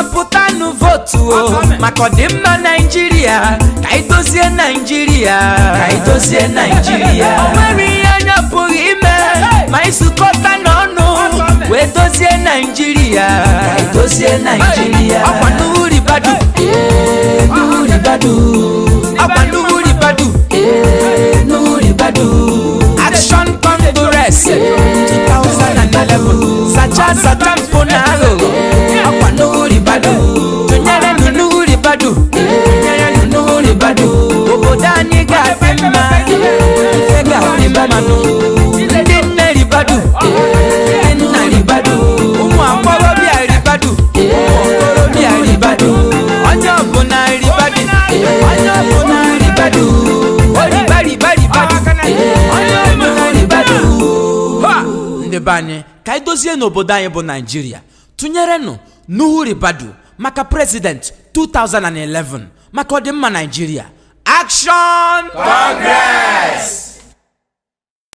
kọmpụtanụ votu o maka ọdịmma naijiria ka anyị dozie naijiria ka anyị dozie naijiria o ihe anya pụghị ime ma ịsụkọta n'ọnụ wee dozie naijiria ka anyị dozie naijiria ọkwa ribadu n'uhu ribadu ọkwa ribadu n'uhu ribadu action congress 2011 sacha sacha mpụ na ahụ ibe anyị ka anyị dozie n'obodo anyị bụ naijiria tụnyerenụ n'uhuribadu Ribadu maka prezident 2011 maka ọdịmma naijiria akshọn Congress